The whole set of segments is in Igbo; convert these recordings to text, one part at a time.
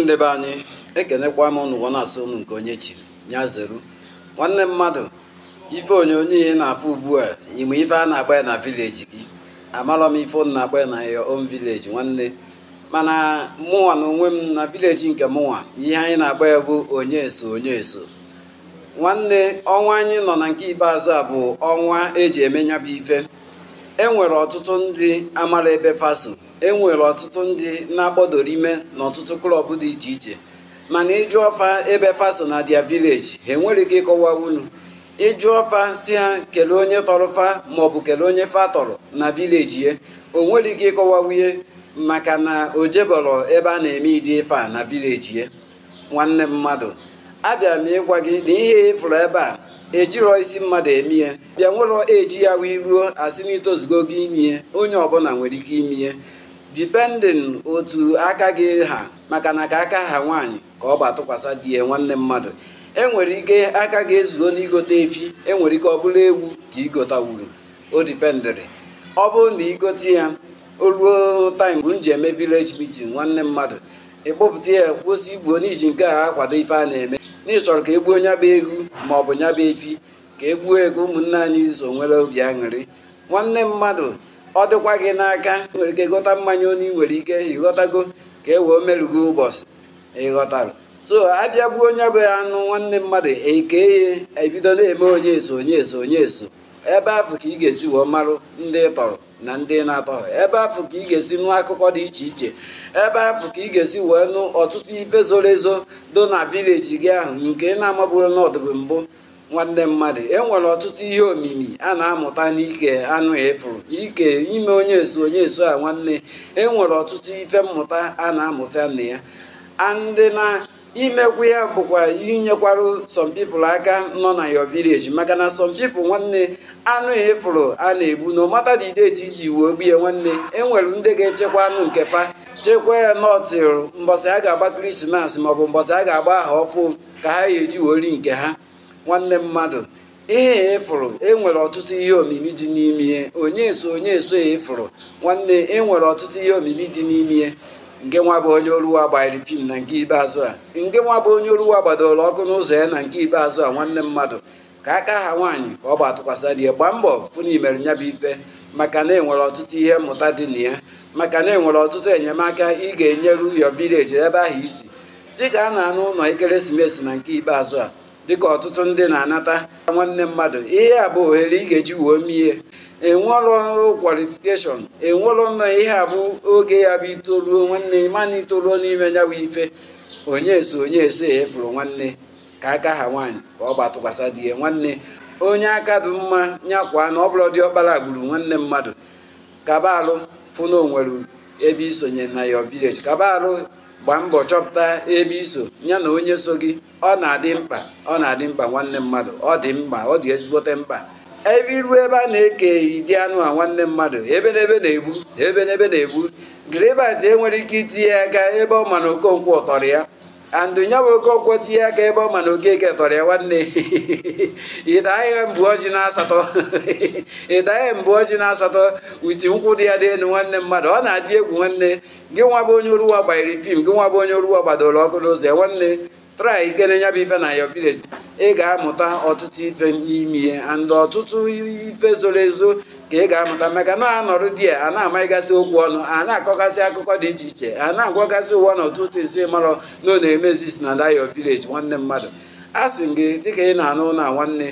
ndị be anyị ekenekwa m ụnụ na-asụ ụnụ nke onye chiri ya zeru nwanne mmadụ ife onyonyo ihe na-afụ ugbu a ime ife a na-agba ya na vileji gị amarọ m ife ụnụ na-agba ya na ya om vileji nwanne mana mụnwa na onwe m na vileji nke mụnwa ihe anyị na-agba ya bụ onye eso onye eso nwanne ọnwa anyị nọ na nke ikpeazụ a bụ ọnwa eji eme bụ ife e nwere ọtụtụ ndị amara ebe faso enwere ọtụtụ ndị na-akpọdoro ime n'ọtụtụ klọb dị iche iche mana ịjụ ọfa ebe faso na dia vileji ha enwere ike ịkọwa unu ịjụ ọfa si ha kelee onye tọrọ fa maọbụ kelee onye fa tọrọ na vileji ya o nwere ike ịkọwa wunye maka na o jebọrọ ebe a na-eme ịdị ife a na vileji ya nwanne mmadụ abịa m ịgwa gị na ihe ịfụrụ ebe a ejirọ isi mmadụ eme ya bịa nwere eji ya wee ruo asị na itozugo gị ime onye ọbụla nwere ike ime dipendin otu aka gị ha maka na ka aka ha nwaanyị ka ọ bụ atụkwasị di ya nwanne mmadụ e nwere ike aka ga-ezuo n'igote efi enwere ike ọ bụla ewu ka igotawuru o dipendịrị ọ bụrụ na igote ya o ruo taim bụ nji eme vileji meeting nwanne mmadụ ịkpụpụta ya kwụsị igbuo n'iji nke a akwado ife a na-eme n'ịchọrọ ka egbuo nyaba egwu ma ọ bụ bụ efi ka egbuo ego ụmụnne anyị so nwere obi aṅụrị nwanne mmadụ ọ dịkwa gị n'aka nwere ike ịghọta mmanya onu ị nwere ike ịghọtago ka e wee merụgo ụbọchị ịghọtarụ so abịa bụ onye bụ anụ nwanne mmadụ ekeye ebido na-eme onye eso onye eso onye eso ebe afọ ka ị ga-esi wee marụ ndị tọrọ na ndị na-atọ ebe afọ ka ị ga-esi nụ akụkọ dị iche iche ebe afọ ka ị ga-esi wee nụ ọtụtụ ife zoro ezo do na vileji gị ahụ nke ị na-amabụrụ n'ọdụbụ mbụ nwanne mmadụ enwere ọtụtụ ihe omimi a na-amụta n'ike anụ ịfụrụ ike ime onye esu onye esu a nwanne enwere ọtụtụ ife mmụta a na-amụta na ya andị na imekwu ya bụkwa inyekwara some people aka nọ na your village maka na some people nwanne anụ ịfụrụ a na-egbu na ọmata dị deeti iji wuo gbuye ya nwanne enwere ndị ga-echekwa anụ nke fa chekwa ya nọtịrụ mbọsị a ga-agba krismas maọbụ mbọsị a ga-agba aha ọfụ ka ha ga-eji wori nke ha nwanne mmadụ ihe efụrụ enwere ọtụtụ ihe omimi dị n'ime ya onye so onye so efụrụ nwanne enwere ọtụtụ ihe omimi dị n'ime ya nke nwa bụ onye oruwa gbariri fim na nke ikpeazụ a nke nwa bụ onye oruwa gbadoro ọkụ n'ụzọ ya na nke ikpeazụ a nwanne mmadụ ka aka ha nwaanyị ka ọ gbatụkwasara ya gbaa mbọ fụna imere nya bụ ife maka na enwere ọtụtụ ihe mmụta dị na ya maka na enwere ọtụtụ enyemaka ị ga-enyeru yo vileji ebe ahụ isi dịka a na-anụ ụlọ ekeresimesi na nke ikpeazụ a dịka ọtụtụ ndị na-anata nwanne mmadụ ihe a bụ ohere ị ga-eji wuo mmie enwelụ kwalifikeshọn enwelụ nọ ihe a bụ oge ya bụ itoruo nwanne mana itoruo n'ime ya bụ ife onye eso onye eso efuru nwanne ka aka ha nwaanyị ka ọ gbatụkwasa di ya nwanne onye aka dị mma nyakwa na ọ bụrụ dị ọkpara gburu nwanne mmadụ kabalụ fụ na onwere ebe isonye na yo vileji kabalụ gbaa mbọ chọpụta ebe iso ya na onye so gị ọ na-adị mkpa ọ na-adị mkpa nwanne mmadụ ọ dị mkpa ọ dị ezigbote mkpa ebe iru ebe a na-eke dị anụ a nwanne mmadụ ebe n'ebe na-egbu ebe n'ebe na-egbu gribat enwere ike itinye aka ebe ọ ma na okonkwo tọrọ ya andụ nya bụ oke ọkwọ tinye aka ebe ọ ma na okeke tọrọ ya nwanne ihe mbụ ọjị na asatọ ihe mbụ ọjị na asatọ uti nkwụ dị ya dị elu nwanne mmadụ ọ na-adị egwu nwanne gị nwa bụ onye oruwa gbanyere fim gị nwa bụ onye oruwa gbadoro ọkụ n'ụzọ ya nwanne trai ikene nya bụ ife na yo village ị ga-amụta ọtụtụ ife n'ime ihe and ọtụtụ ife zoro ezo ka ị ga-amụta maka na-anọrụ di ya a na-amaghịgasị okwu ọnụ a na-akọgasị akụkọ dị iche iche a na-agwagasị ụwa na ọtụtụ isi marọ na ọ na-emezis na dayo village nwanne mmadụ a sị gị dịka ị na-anụ na nwanne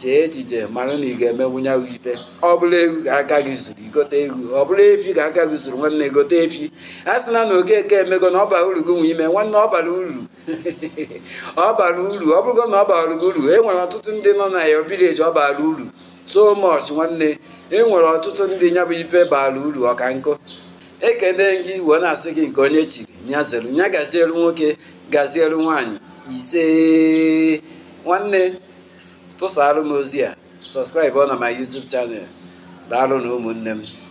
chee echiche mara na ị ga-emenwunya ife ọ bụla egwu ka aka gị zuru igote egwu ọ bụla efi ka aka gị zuru nwanne gote efi a sị na na okeke emego na ọ bara uru gị nwe ime nwanne ọ bara uru ọ bara uru ọ bụrụgo na ọ bara gị uru e nwere ọtụtụ ndị nọ na yo village ọ bara uru so much nwanne enwere ọtụtụ ndị nya bụ ife baala uru ọka nkụ ekene gị wee na-asị gị nke onye chiri nya nya gazielu nwoke gazielu nwanyị ise nwanne tụsara m ozi a ọ na my YouTube chanel daalụ na ụmụnne m